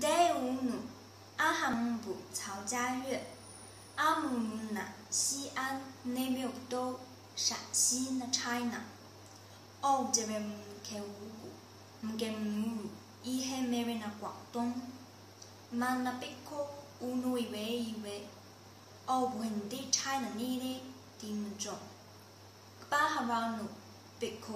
Day 五五，阿哈木布曹家乐，阿木木那西安内蒙古陕西那 China，哦这边开五谷，木根木，伊是那边那广东，曼那北可乌奴伊喂伊喂，哦不，兄弟 China 你的品种，八哈玩努北可。